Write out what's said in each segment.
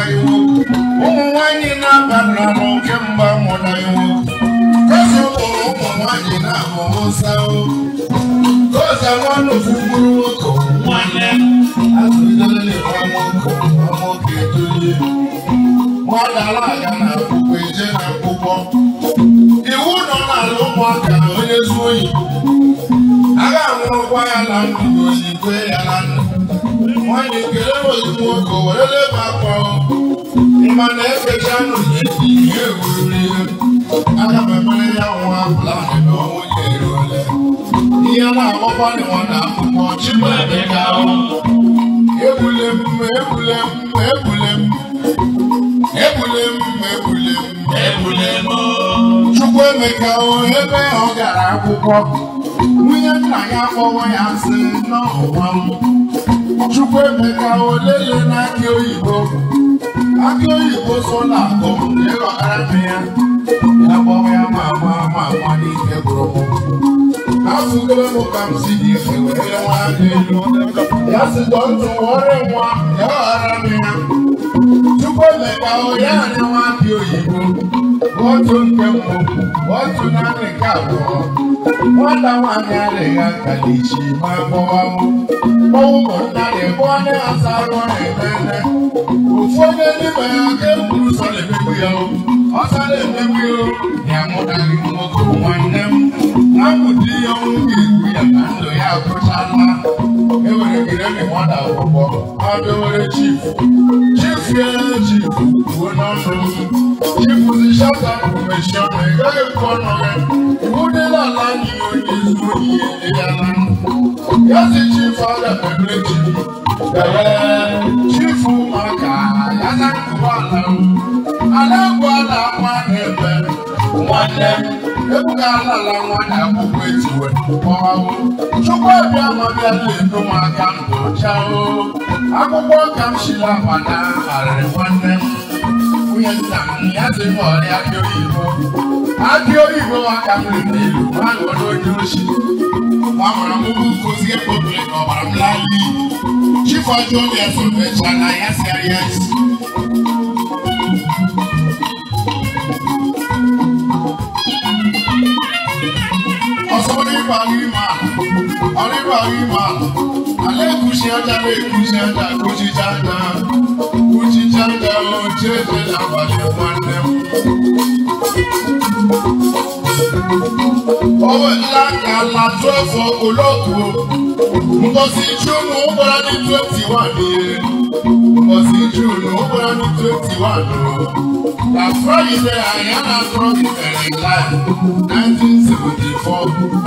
mụnaiwu ụmụ nwanyị na-abara n'oke mba mụnaiwu eze ụlọ ụmụ nwanyị na-amụ Musa goza nwanne ofugburu nwoke nwanne azụdole nwa nwoke nwa nwoke edolie nwadala aga na akwụkwọ eje na akwụkwọ iwu nọ n'ala ụmụaka onye zuo oyi a ga ya na ndụ oyi ya na ndụ mmadụ ekele ozugbo ka o were leba akwa mmanụ efecha nụ na-eti ihe ewururu ihe aga m emere ya nwa planị na ọnwụ ya eruole ihe na-agwakwa nwa na akwụkwọ chibadịga ebule m ebule m ebule m ebule m ebule m ebule m chukwu emeka o ebe ọ gara akwụkwọ nwunye nna ya akpọwa ya nsị n'ọnwa m Chukwu emeka olele na akị oyibo akị oyibo so na n'akụ ịghọtara m ya ya gbawa ya ma ama ama ama n'ike gbụrụ m afụgoro m ka m si dị gị ya nwa aka elu ya si dọtụ were nwa ya ghara m ya Chukwuemeka ya anya nwa akị oyibo otu nke mbụ otu naanị nke abụọ nwata nwaanyị adịghị aka n'ichi ma gbọwa m mmanwụ ma narị bụọ ndị asa arụ na-eme ofu onye n'ime ya ka ekwuru sọ na-emegbu ya ọsa na-emegbu ya ya mụtara nwoke nwanne m na mkpụdi ya ọnwụ ga-egbu ya na ndụ ya agwụchala enwere gịnị nwata akwụkwọ adịwere chief chief ya chief kwuo n'ọnụ chief si shata kọmishọn ị gaghị ekwu ọnụ gị iwudela ala anyị onye zuru ohi ya na ya si chief aga emere chief ee chief maka ya na nkụwa ala ala bụ ala nwa na-ebe nwanne m ebugara ala nwanyị akwụkwọ ejiwe kpọwawo chukwuobi amabiala edu m aka ndụ chao akwụkwọ ka m shila mana harịrị nwanne m nwunye nna m ya dị m ọrịa akị oyibo akị oyibo aka m riri n'elu ha n'oge onye ochi gbamara m ugwu nkuzi ekpobiri ka ọbara m laa n'iyi chifọjụ obi esomecha na ya serious Ibrahima alekushi aja lekushi aja kushi janda kushi janda ojeje labale nwanne m. Owó ńlá kan la tó olóko. Mbosi Júnù ń bọ́ra ní twenty one yẹn. Mbosi Júnù ń bọ́ra ní twenty one o. Làfọ́ ilé Àyànà Trump ìbẹ̀rẹ̀ láì nineteen seventy four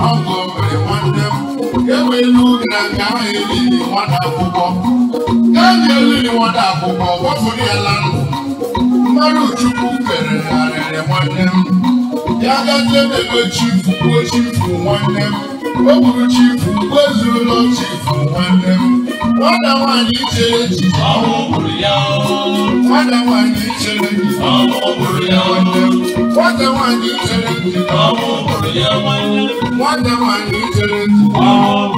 ọgọ́ bẹ̀rẹ̀ wọ́n dẹ́kun. enwe elu na nke ahụ eliri nwata akwụkwọ enyi eliri nwata akwụkwọ gbapụrụ ya la mmadụ chukwu kpere narịrị nwanne m ya gazie n'ebe chifu gbuo chifu nwanne m o gburu chifu gbuo chifu nwanne m nwata nwaanyị chere ya. nwata nwaanyị chere echiche nwanne m What the one you tell it? Oh, yeah, one. What the one you tell it? Oh,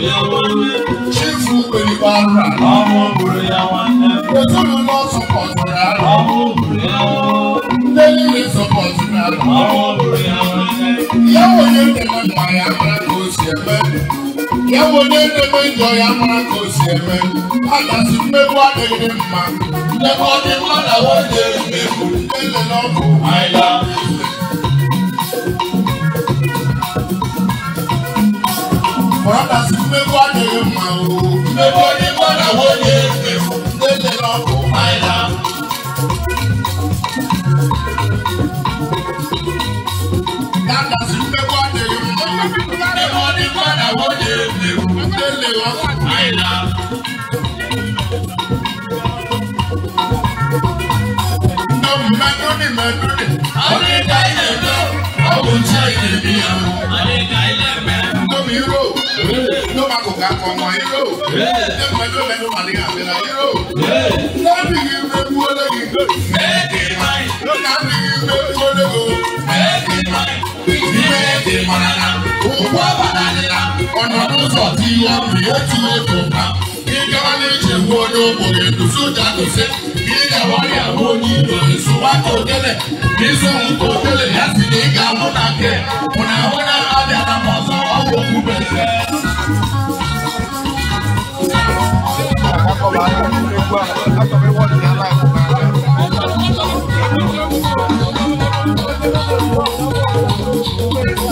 yeah, one. Chief Uberi Barra. Oh, yeah, one. The two of us support her. Oh, yeah, one. The lady support her. Oh, yeah, one. Yeah, one. Yeah, one. Yeah, one. Yeah, one. Yeah, ewere edebe njọ ya mara ka o si eme agasị mmegbu adịghị mma ndebe ọdịmma na nwunye mmegbu ele n'ọkụ aịla agasị mmegbu adịghị mma o mmegbu ọdịmma na nwunye mmegbu ele n'ọkụ aịla agasị mmegbu adịghị mma ìyàwó lè léwu délé wọn àìlà. Mẹ́dúnì mẹ́dúnì. Àríkà ilẹ̀ lọ, ọ̀hún ṣe ilé mi yàn. Àríkà ilẹ̀ mẹ́. Lómi ró, ló máa kò ká kọ ọmọ yìí ró. Ṣé mẹ́dúnì mẹ́dúnì màlíkà àbẹ̀rẹ̀ yìí ró? Lọ́bì yìí rẹ̀ wú ọlọ́yìn. ọbì otu otu mkpa ịgawa n'ije nwa onye ogbenye eguzo jadose ịgawara ya bụ onye iro nsụwaka ogele n'izu nke ogele ya si na ịga ahụ na nke bụ na ahụ na abịa na ọzọ ọgwụ okwube Thank you.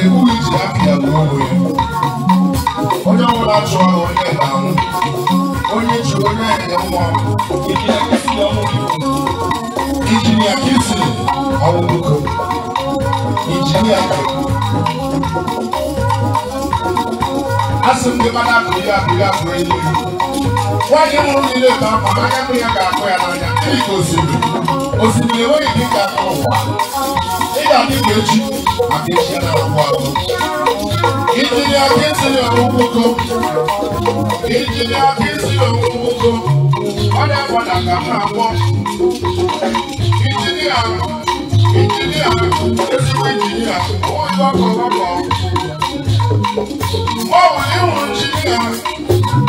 Hey, who is that here? Onye ọbụla chụọ onye ga-anwụ onye chi onye enye nwa injinia kisi ọwụbụko injinia asị m gị mana akụ ya akụ ya akụ enyi nwaanyị nwụrụ niile ka mma anya ya ga-akụ ya n'anya gosiri osimiri enweghị dị ka ụwa ị ga-adị ka echi maka echi na agwụ agwụ ijiri aka esiri ọgwụgwụ ijiri aka esiri ọgwụgwụ ọ na-agbada ka ha agwọ injinia injinia ezigbo injinia onye ọkụ ọkụ ọ bụ ịhụ injinia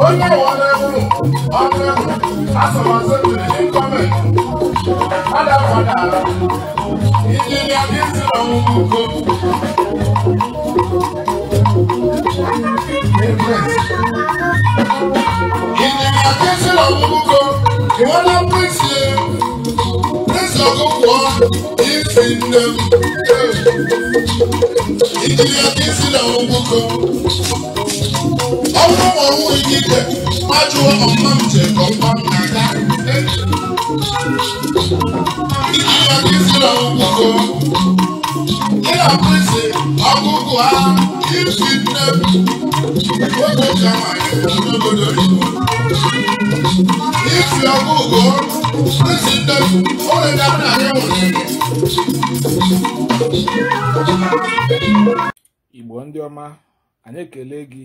onye ọnụegwu ọnụegwu asọmasị mmiri gọọmenti adakwadara injinia dịzi n'ọnwụwụ ugo injinia dịzi n'ọnwụwụ ugo iwela prịnsị nsọgụkwọ isi ọrụ ikike ajụọ ọma m je ọma m na-aga ịdịba gị si na ọgwụgwọ ị na-abụ isi ọgwụgwọ ha isi nne oge ji amaghị n'obodo igbo isi ọgwụgwọ isi nne oge dabara ya nwere igbo ndị ọma anyị ekele gị